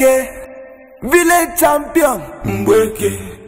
Mbweke, village champion. Mbweke.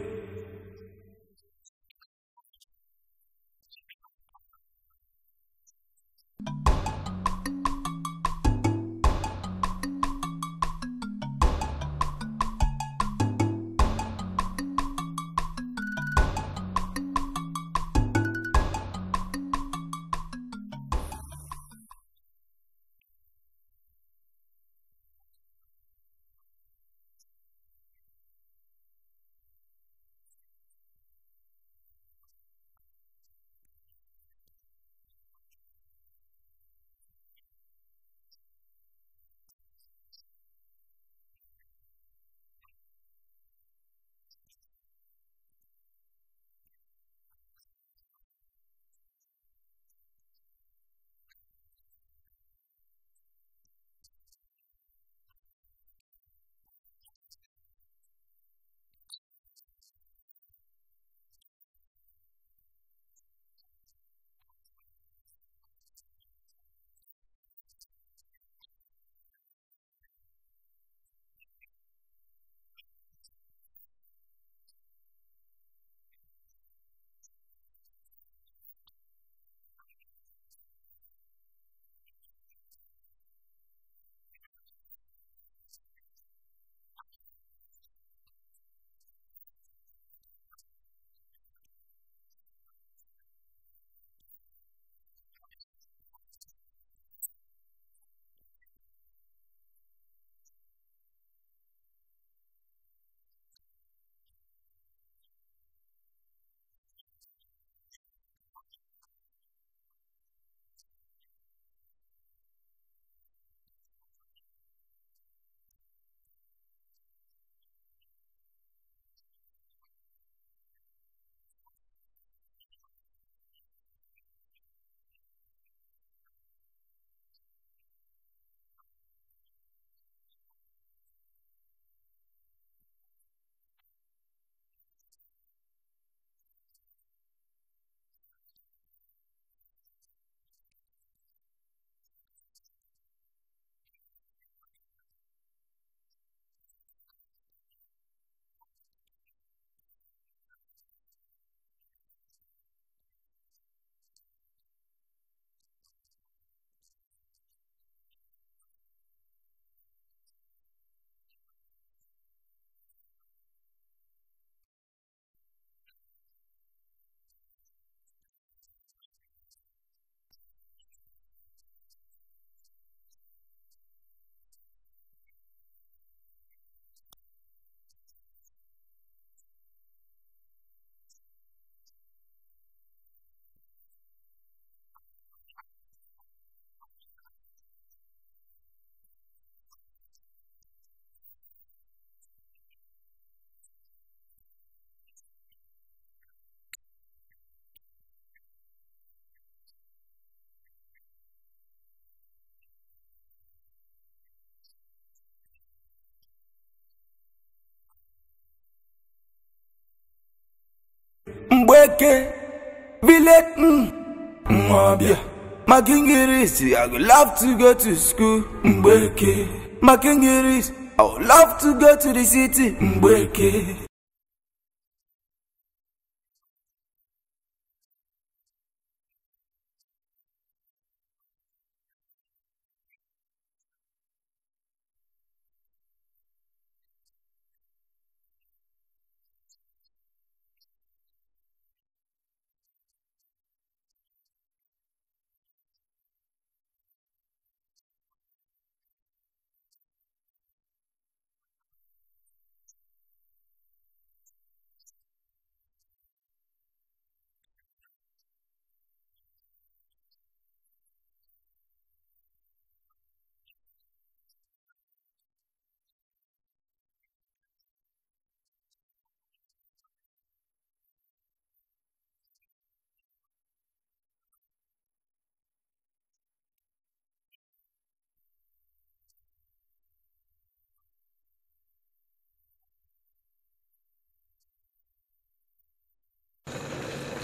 Mgbeke village mm. Mwabia Makingiris, I would love to go to school Mgbeke Makingiris, I would love to go to the city Mgbeke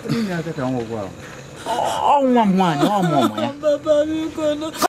Oh va oh, oh, Oh, oh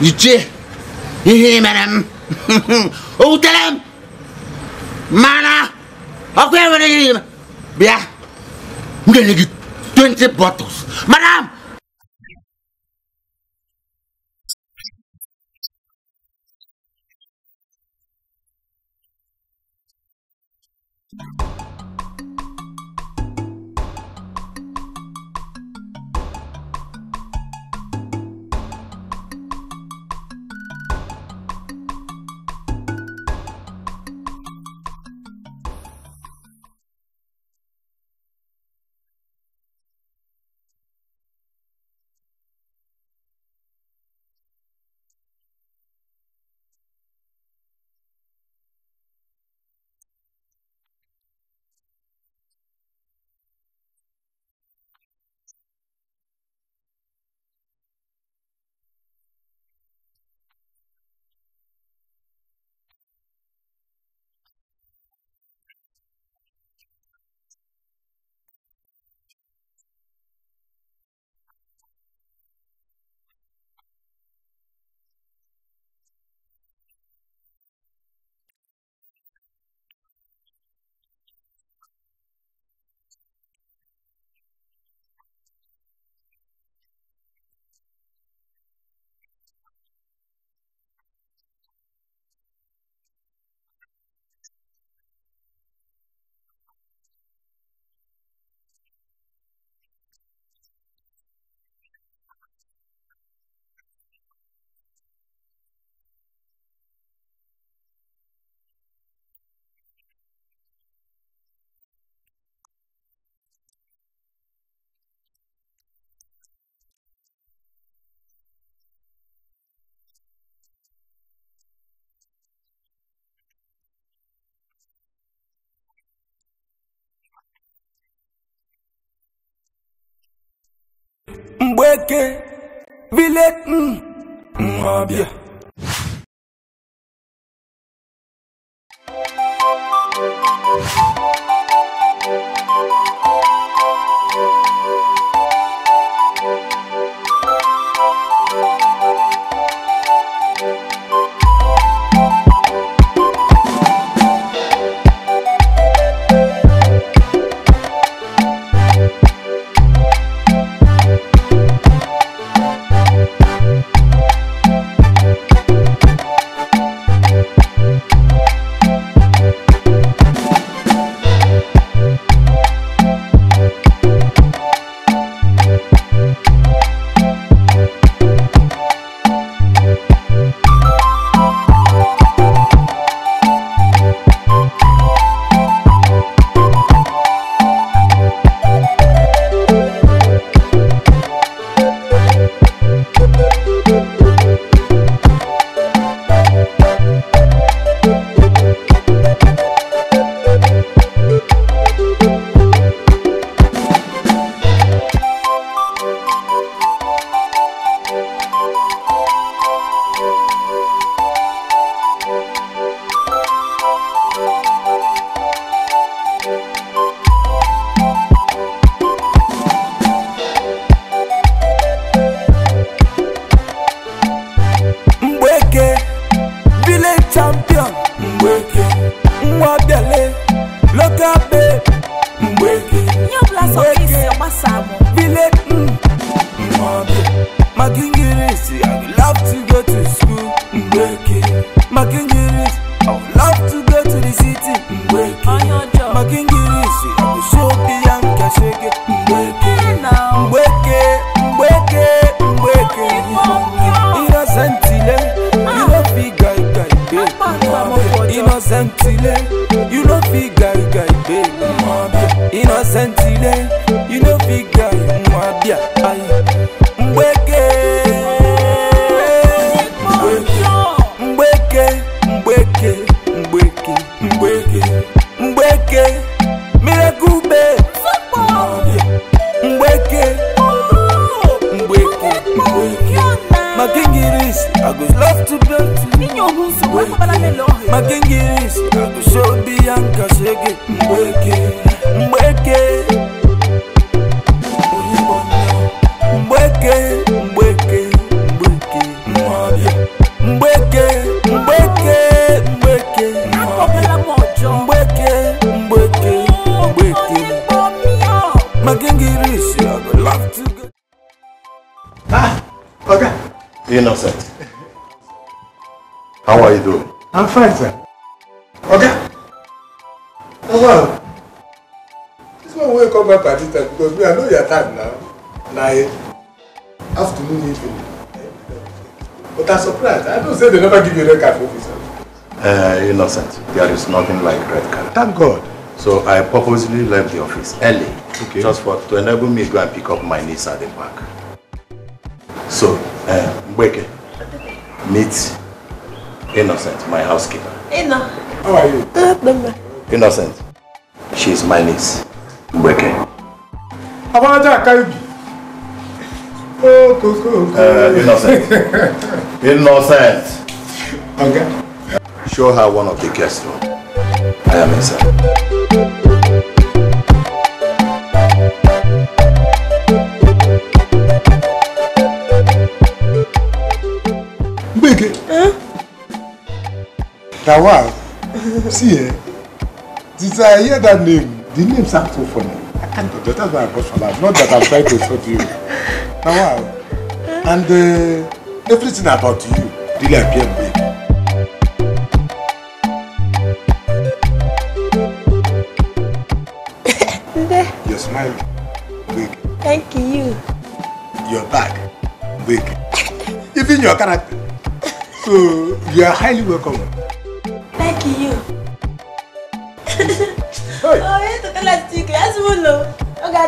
Gidje. Himmelem. Útelem. Mana. Akkor van egy... Bia. Mindenki 20 bottles. Madame! Thank you. weke, villet, mm, mm, yeah. Bia. fine sir. ọ̀gá ẹ this one will come back this time because me i know your time now na afternoon evening but i'm surprised i don't say they never give you red card for Uh, eh, innocent there is nothing like red card. thank god. So I purposely left the office early okay. just for to enable me to go and pick up my niece at the park. So, uh, eh, Mbweke, meet Innocent, my housekeeper. Inna. How are you? Good, Uh, Innocent. she is my niece. Mbeke. Abanaja Akaibi. Oh, Koko. Uh, innocent. innocent. Okay. Show her one of the guest rooms. I am inside. Lawal, see eh? Did uh, I hear that name? The name sounds so funny. That's why I got for Not that I'm trying to insult you. Lawal, and uh, everything about you really appeared big. Your smile, big. Thank you. Your back, big. Even your character. So you are highly welcome.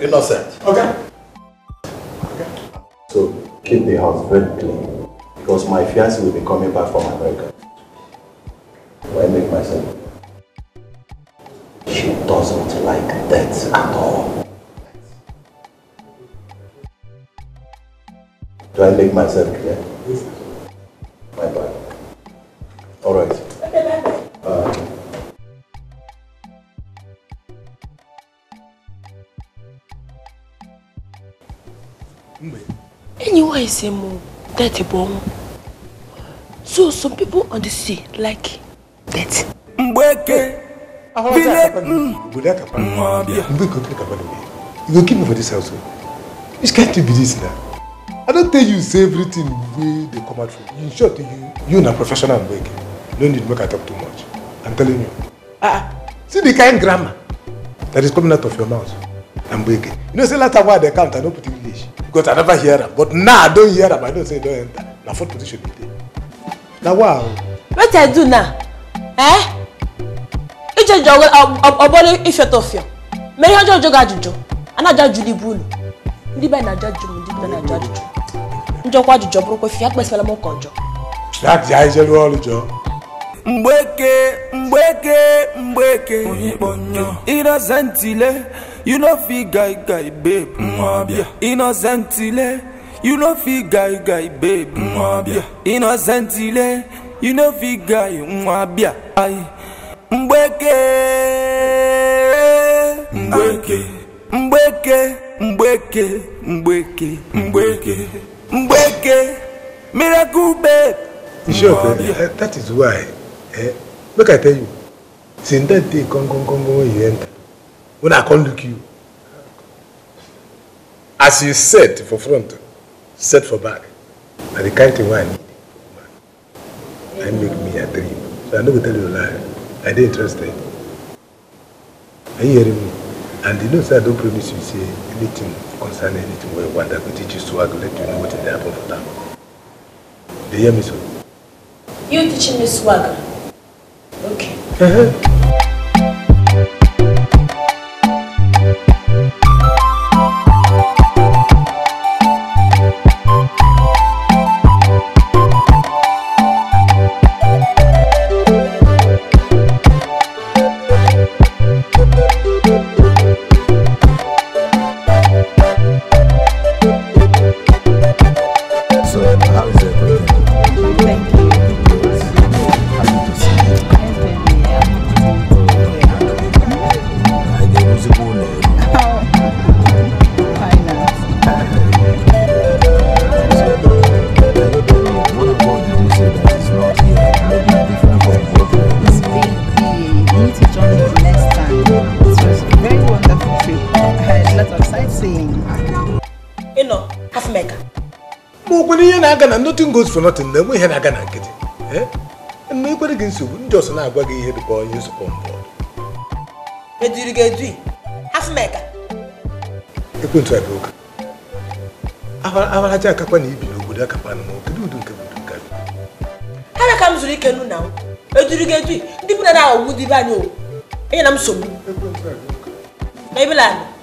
innocent. Okay. okay. So keep the house very clean because my fiance will be coming back from America. Why I make myself? She doesn't like that at all. Do I make myself clear? same dirty bomb. So some people on the sea like that. Mbeke! Will mm. mm, you go keep me for this house? Oh. Which can't you be this now? I don't tell you say everything where they come out from. In short, you you na professional Mbeke. No need make I talk too much. I'm telling you. Ah, ah, see the kind grammar that is coming out of your mouth. Mbeke. You know, say later why they count, I don't put it because i never hear am but now i don't hear am i know say don't don enter na fourth position e dey na wa o. wetin i do now eh? ijeje ọbọlé ifeatọfia mere ihe ọjọọ jogo ajụjụ anaja ajụjụ ibu unu ndị be na-ajụ ajụjụ m ndị be na-ajụ ajụjụ njọkwa ajụjụ bụrụkwa fi ya kpesịrịla m ụka ọjọọ. ya ji anyị jeru ọrụ jọọ. mgbeke mgbeke mgbeke onye kpọnyọ ịrọza ntile you no fit guy guy babe mm, mwabia innocent ile you no fit guy guy babe mm, mwabia innocent ile you no fit guy mwabia ai mgbeke mgbeke mgbeke mgbeke mgbeke mgbeke mgbeke miracle babe mwabia eh, that is why eh, make i tell you since that day come come come when you enter when i come look you as you set for front set for back na the kind thing wey i need na make me a dream so i no go tell you a lie i dey interested are you hearing me and you know sir, i don promise you say anything concerning anything where one want i teach you so let you know wetin dey happen for Do you hear me sir? you teaching me swag? okay. Uh-huh. na-aga na nothing goes for nothing na enwe ihe na-aga na nkịtị na ekwere gị nsogbu ndị ọsọ na-agwa gị ihe dịka onye nzukọ mbụ ediri edu akakwa na ibi n'obodo na kedu udo nke obodo nka ha na ka m ike ndị na dibe anyị o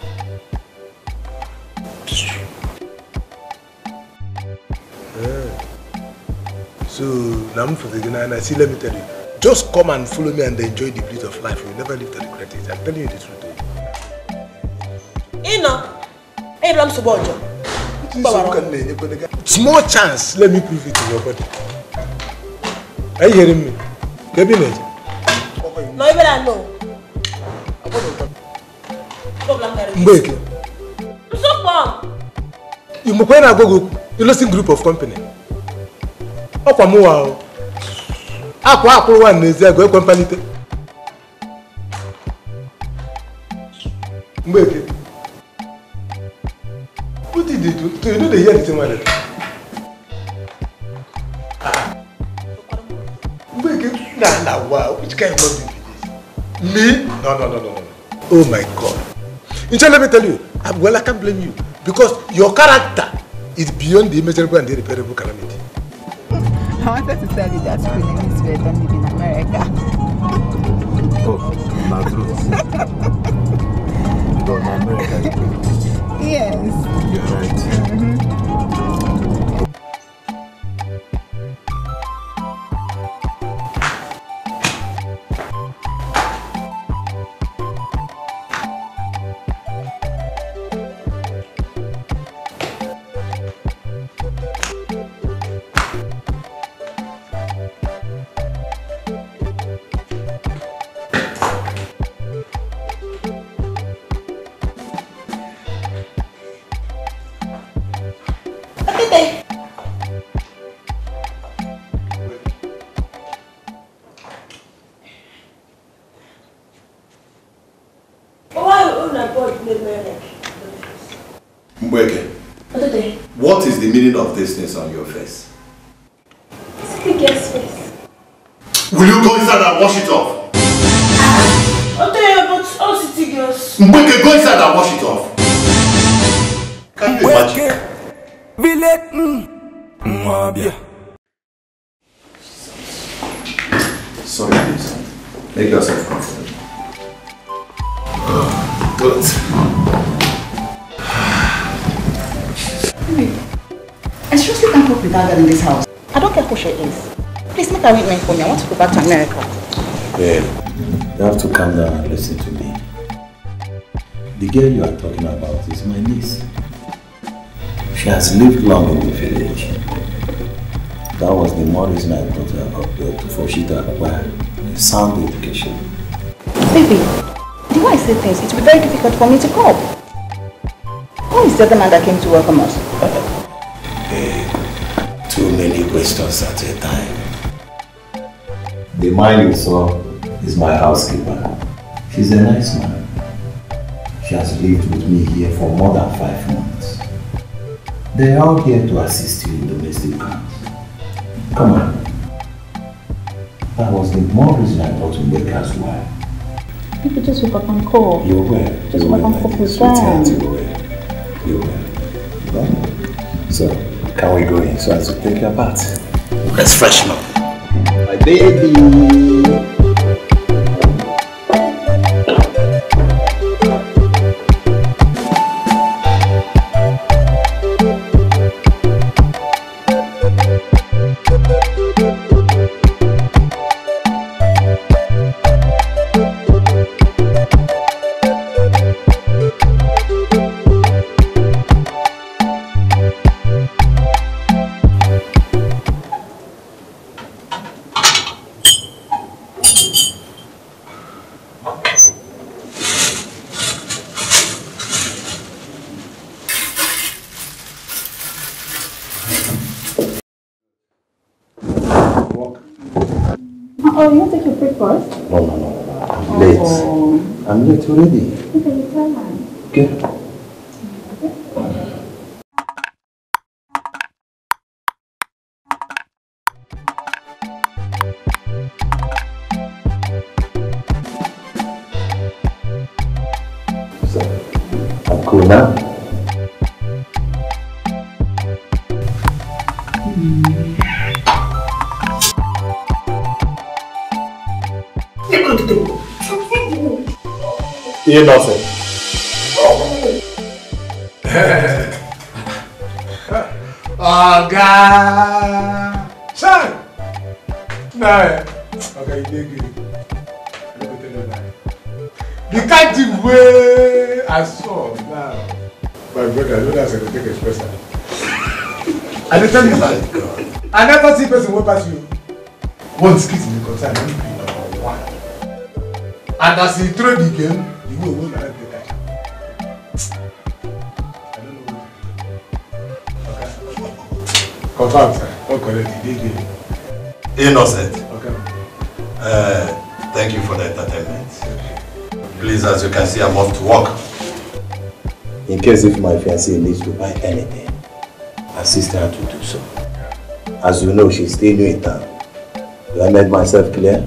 So now I'm for the dinner, and I see, let me tell you, just come and follow me and enjoy the bliss of life. You'll never live to regret it. I'm telling you the truth. Oh. Ino, Abraham Subojo. Small chance, let me prove it to your body. Are you hearing me? me Cabinet. No, even I know. Mbeke. Msopom. You must go to a group of company ọkwa mụwa ahụ akwa akwụrụwa n'ezi ego ekwe mkpalite mgbeke what did you do to you no dey hear the thing me no no no no no oh my god nche let me tell you I'm, well i can't blame you because your character is beyond the imaginable and the irreparable calamity I wanted to tell you that school name is Red and live in America. oh, my truth. Go in America. Yes. You're right. Mm -hmm. ですね産業 with that girl in this house. I don't care who she is. Please make arrangement for me. I want to go back to America. Well, you have to calm down and listen to me. The girl you are talking about is my niece. She has lived long in the village. That was the more reason I brought her up here to for she to acquire a sound education. Baby, the way I say things, it will be very difficult for me to cope. Who is the other man that came to welcome us? too many questions at a time. The man you saw is my housekeeper. She's a nice man. She has lived with me here for more than five months. They are all here to assist you in domestic can. Come on. That was the more reason I thought to make us You People just woke up and call. You were. Just woke up and call. You were. You were. So, can we go in so as to take your bath? Let's freshen up. My baby. Oh, you want to take your breakfast? No, no, no. I'm oh. late. I'm late already. Okay, you tell her. Okay. One mi in the container. ní pè number one and as he throw the game ìwé owó náà gbé ká. confam sir wọn kọ lẹbi déédéé. innocent okay. uh, thank you for the entertainment please as you can see i'm off to work. in case if my fiancée needs to buy anything assist her to do so as you know she's still new in town Have I made myself clear?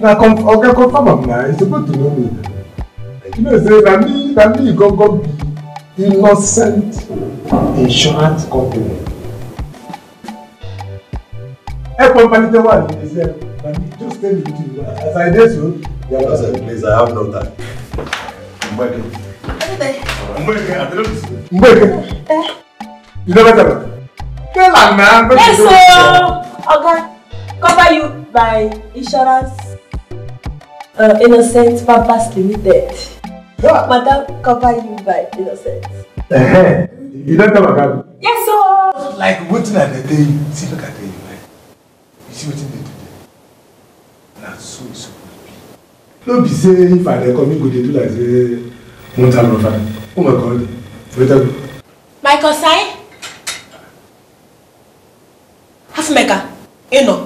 Now, come, okay, confirm am now. It's supposed to know me. You know, say that me, that me, go go be innocent insurance company. Hey, company the one. He said, just tell me what you want. As I did so, yeah, was a place I have no time. Mbeke. Mbeke, I don't Mbeke. Eh? You know better. Tell her, man. Yes, sir. Oh, okay cover you by insurance uh, Innocent Purpose Limited. What? Madam, cover you by Innocent. Uh-huh. You don't come again? Yes, sir. Like wetin I dey tell you, see look at the like, you see what they do there? Na so e suppose be. No be say if I dey come, you go dey do like say one time no fine. Oh my God, wait a minute. My concern? Half maker, you know.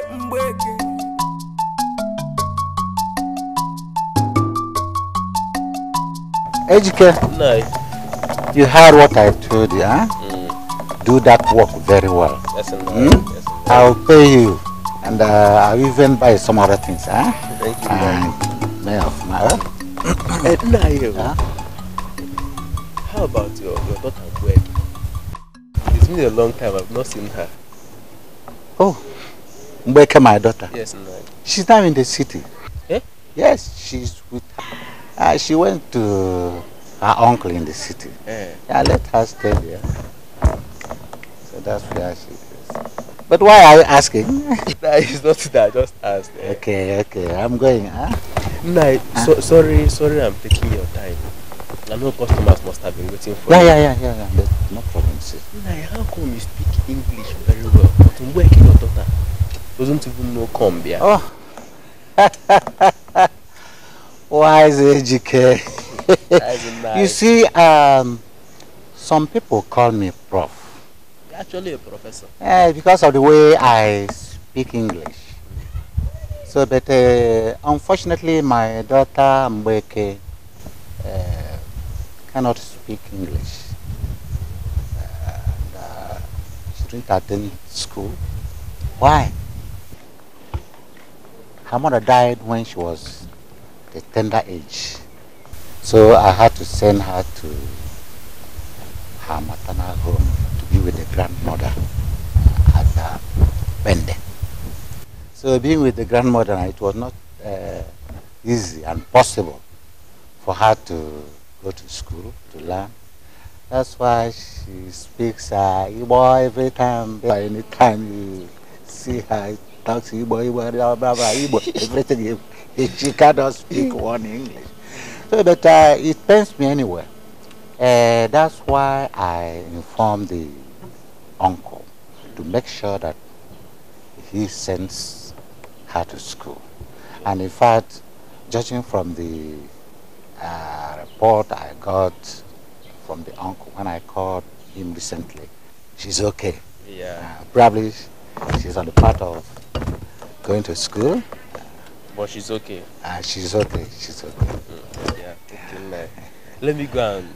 Ejike. No. You heard what I told you, huh? Mm. Do that work very well. Yes, yes, hmm? I'll pay you. And uh, I'll even buy some other things, huh? Thank you, May of my How about your, your daughter Gwen? It's been a long time. I've not seen her. Oh. Mbeke, my daughter. Yes, no. She's now in the city. Eh? Yes, she's with uh, she went to her uncle in the city. Eh. Yeah. I let her stay there. So that's where she is. But why are you asking? nah, it's not that. I just asked. Eh? Okay, okay. I'm going. Huh? Ah. Nah, huh? Ah. So, sorry, sorry. I'm taking your time. I know customers must have been waiting for yeah, you. Yeah, yeah, yeah, yeah. No problem, sir. Nah, how come you speak English very well? But where your daughter doesn't even know Combia? Oh. Why Wise educated? you see, um, some people call me prof. You're actually a professor. Yeah, because of the way I speak English. So, but uh, unfortunately, my daughter Mbeke uh, cannot speak English. Uh, she didn't attend school. Why? Her mother died when she was the tender age. So I had to send her to her maternal home to be with the grandmother uh, at uh, Bende. So being with the grandmother, it was not uh, easy and possible for her to go to school to learn. That's why she speaks uh, Igbo every time. By any time you see her, talks Igbo, Igbo, blah, blah, blah, Igbo, everything. she cannot speak mm. one English. So, but uh, it pains me anyway. Uh, that's why I informed the uncle to make sure that he sends her to school. And in fact, judging from the uh, report I got from the uncle when I called him recently, she's okay. Yeah. Uh, probably she's on the path of going to school. But she's okay. Ah, she's okay. She's okay. Mm, yeah, okay, man. Let me go and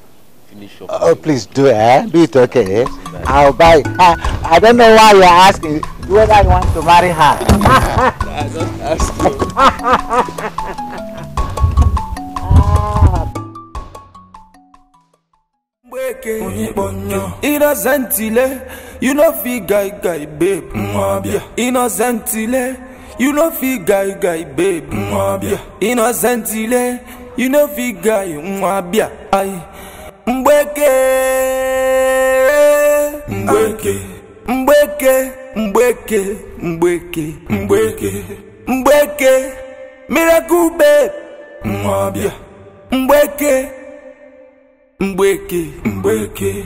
finish up. Oh, please do, eh? Do it okay, eh? I'll buy. I, ah, I don't know why you're asking whether I want to marry her. I don't ask you. Innocentile, you know fi guy guy babe. Innocentile, you no fit guy guy babe innocent ile you no fit guy ayi mgbeke mgbeke mgbeke mgbeke mgbeke mgbeke mgbeke miracle babe nwabịa mgbeke mgbeke mgbeke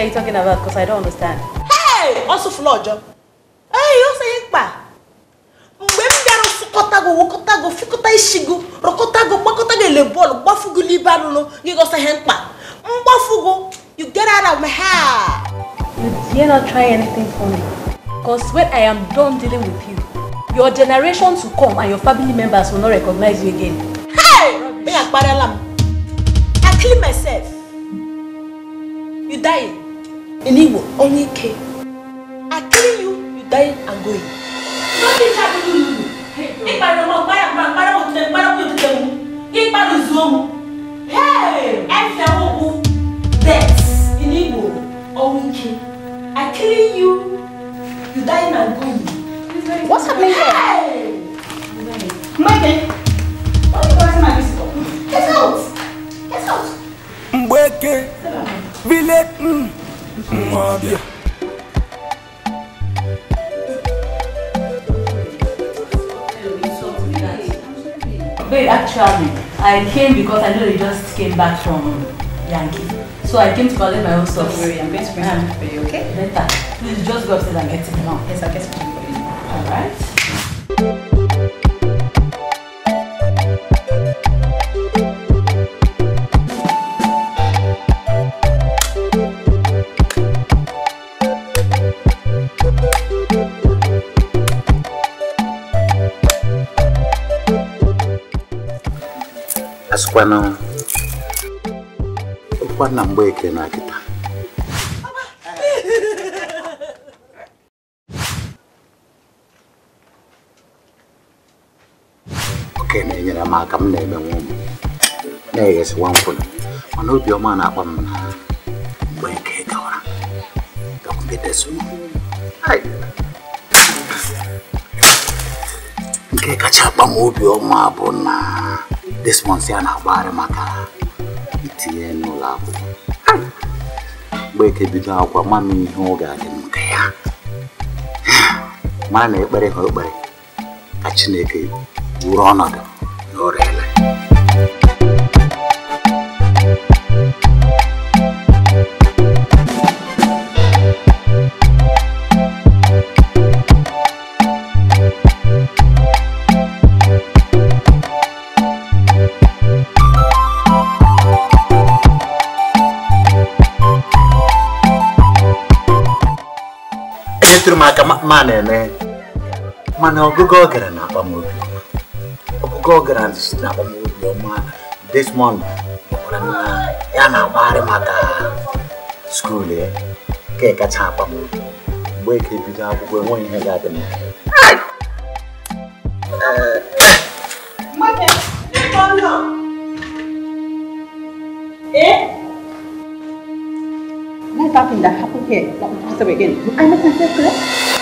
are you talking about? Because I don't understand. Hey! Also floor job. Hey, you say pa. Mgbe m bịara sụkọtago wokọtago fikọta ishigo rọkọtago gbakọtago ele bọọlụ gbafugo n'ibe arụrụ gị gosa ihe mkpa mgbafugo you get out of my hair. You dare not try anything for me. Because when I am done dealing with you, your generations will come and your family members will not recognize you again. Hey! Me akparela m. I clean myself. Iliwo, only K. I kill you, you die and go in. Nothing happened to you. If I don't buy a man, I won't take my own to them. If I lose them, hey, I fell. That's Iliwo, only K. I kill you, you die and go in. What's happening here? Hey! Michael, eh? what are you going to my visitor? Get out! Get out! Mbweke, vile, mm. mwabya Wait, actually, I came because I know you just came back from Yankee. So I came to collect my own stuff. Don't worry, I'm going to bring um, for you, okay? Better. Please just go upstairs and get it now. Yes, I'll get it for you. Alright. Kwano Kwana mbweke na kita Oke na enyere m aka m na-eme nwa m na-eghesiwa nkwụna mana obiọma na-akpa m na mgbe nke gawara gakwubeteso nke kacha akpa m obiọma bụ na despọnsị a na-agbagharị maka itinye n'ụlọ akwụkwọ mgbeke bido akwa ma m ihe ọ ga-adị m nke ya mara na ekpere ha ekpere ka Chineke wuru ọnọdụ mana ọgụgụ ọ gara na akpamobi ọgụgụ ọ gara na akpamobi ọma Desmond gwara na ya na-agbagharị maka skuul ya ka kacha akpamobi mgbe ka ebido akwụkwọ enweghị ihe ga-adị m Eh? Nothing that happened here, not again.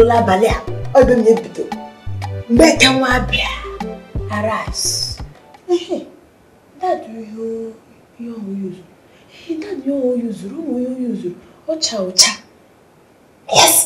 n'ụlọ abalị a ọdụ m ebido mgbe ka nwa bịa aras dad ihe oyuzuru dad ihe oyuzuru ụmụ ihe oyuzuru ọcha ọcha yes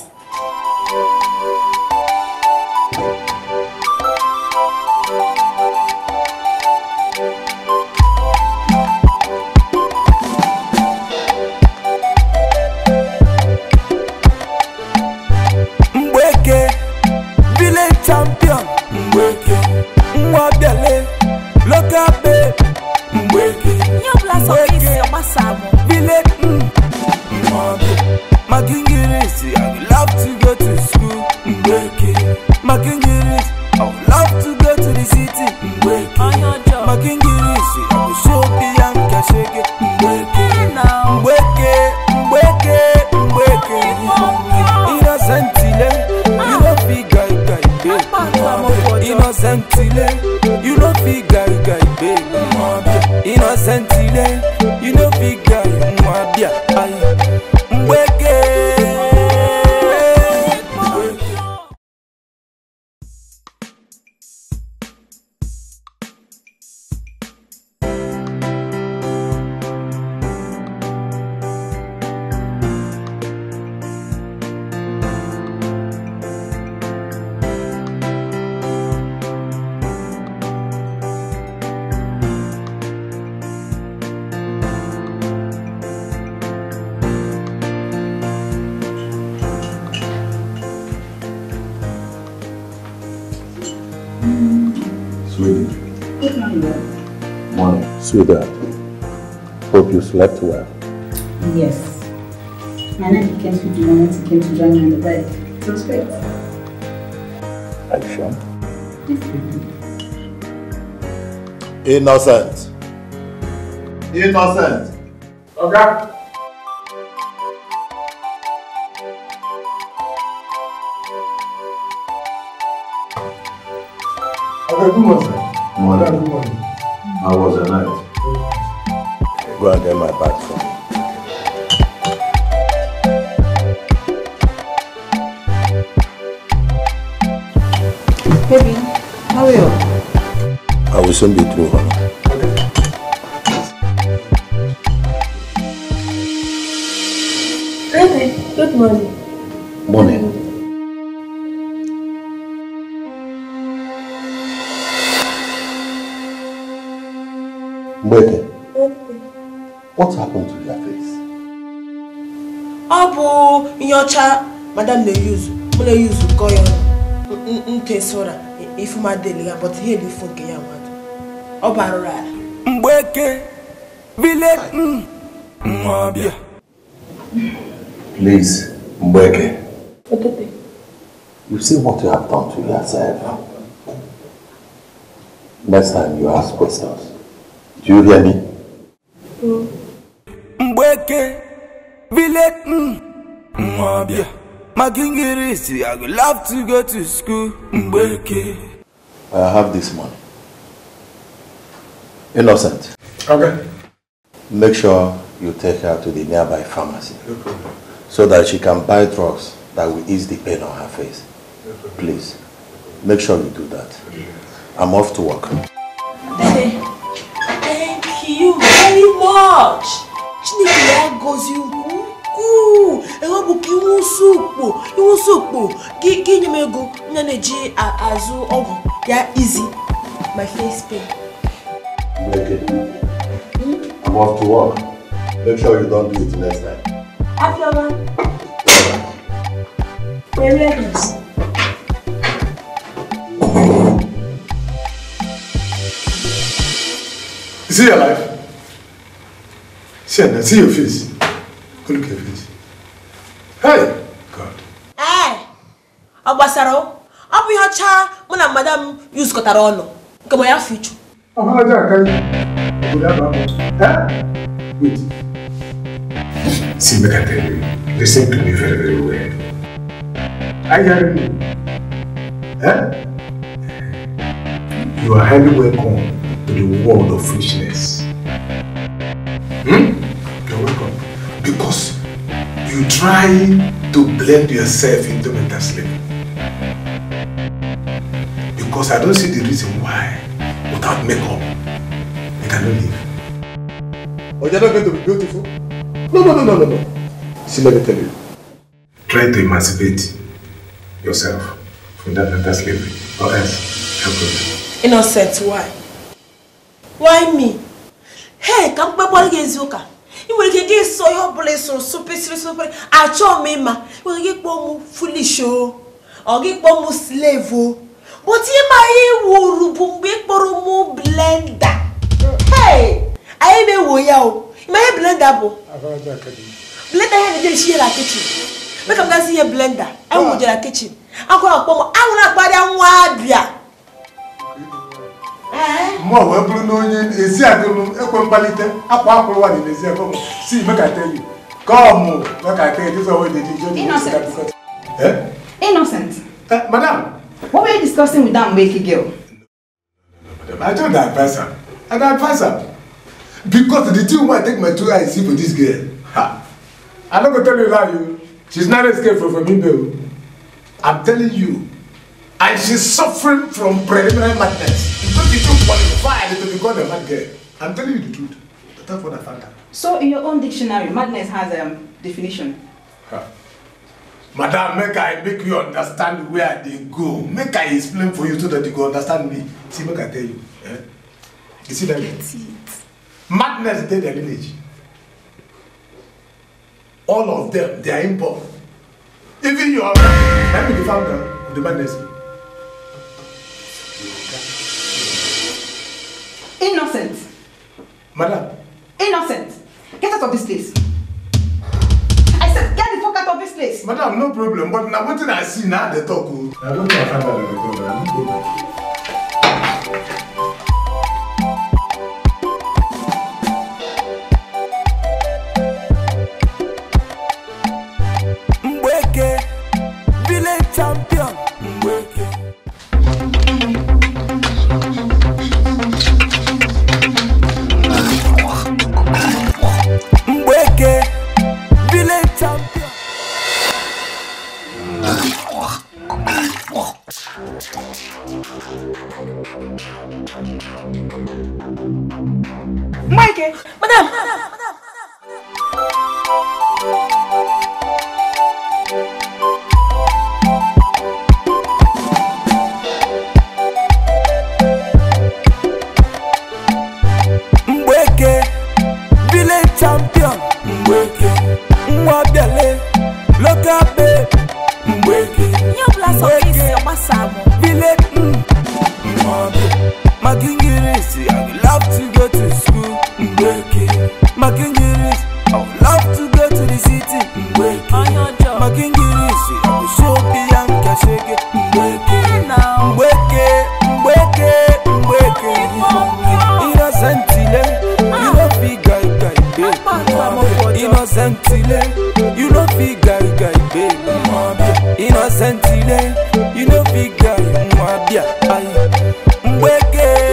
clients who came to join me on the bed. It was great. Are Innocent. Innocent. Okay. Okay, good morning, sir. Morning. Good morning. How was the night? Go and get my bag. connection between us. Baby, good morning. Morning. Mbeke, okay. what happened to your face? Ọ bụ nyocha madam na-eyuzu, mụ na-eyuzu kọ ya ntesora ifu ma deli ya, but ihe dị ifu nke ya nwa. ọ bara ala mgbeke village mm, please mgbeke you see what you have done to yourself next time you ask questions do you hear me mm. mgbeke village mm, nwabịa my king is I would love to go to school. Mbeke. I have this money. Innocent. Okay. Make sure you take her to the nearby pharmacy. No problem. So that she can buy drugs that will ease the pain on her face. No Please, make sure you do that. I'm off to work. Hey, thank you very much. Chineke gozi I want bụ ka iwu sụkpo, iwu sụkpo, ka Give m ego go na-eji azụ ọgwụ ya easy. my face pain. Naked. Mm? I'm off to work. Make sure you don't do it next time. Afiola. We're ready. Is he alive? See, I see your face. look at your face. Hey! God. Hey! Eh! Agbasaro, I'm bụ ihe ọcha mụ madam Yus kọtara ọnụ nke ma ya fichu afọlájà kan òkúta bàbá ẹ wait. see make i tell you to me very very well are you hearing you are highly welcome to the world of foolishness hmm? you're welcome because you try to blend yourself into mental slavery because i don't see the reason why without makeup, they cannot leave. Oh, you're not going to be beautiful. No, no, no, no, no, no. See, let me tell you. Try to emancipate yourself from that mental slavery, or else help them. Innocent, why? Why me? Hey, come back, what is your ị nwere ike gị sọ ihe ọbụla ịsụrụ super. sụpịrị achọ m ịma ị nwere ike kpọọ m fulish o ọ gị get m oh. slave o oh. but ịma iwuru bụ mgbe ịkpọrọ mụ blenda anyị na-ewo ya o ịma ihe blenda bụ blenda ya na-eje esi ihe na kichin mee ka m gazi ihe blenda anyị wụjere na kichin akwara akpọ m anwụrụ akparịa nwa abịa mụ wee bụrụ na onye ezi adịlụ ekwe mkpalite akwa akwụrụ nwaanyị n'ezi akwa m si mekata enyi ka ọ mụ mekata enyi dịzọ wee dị dị jọ dị Innocent. Eh? Eh, madame What were you discussing with that Mbeki girl? No, I don't advise her. I don't advise her. Because the thing why I take my two eyes see for this girl. Ha. I'm not going tell you lie. You. She's not escaped from, me, Imbe. I'm telling you. And she's suffering from preliminary madness. Because she don't qualify to be called a mad girl. I'm telling you the truth. That's what I found out. So in your own dictionary, madness has a um, definition. Ha madam make i make you understand where i dey go make i explain for you so that you go understand me see make i tell you eh? you see that madness dey their village all of them they are import even your na be the founder of the madness. innocent. madam no problem but na wetin i see na i dey talk o. Oh. i don't know if i dey record i no go. boy. Innocent you no fit guy guy baby. Innocent delay, you no fit guy mwabia. Aye, mwege.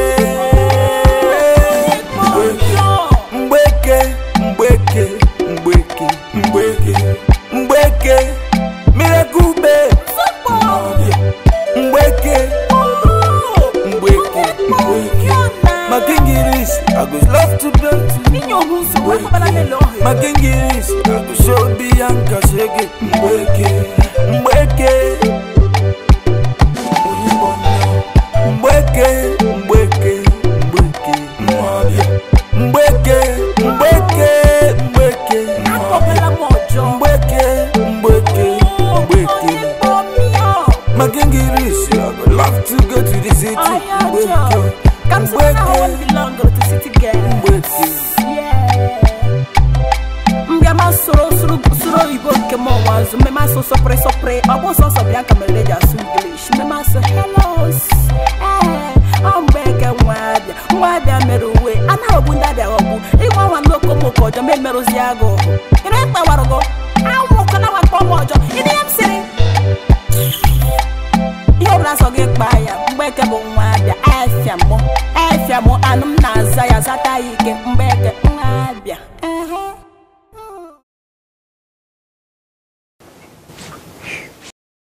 shake it, break it.